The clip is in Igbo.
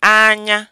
anya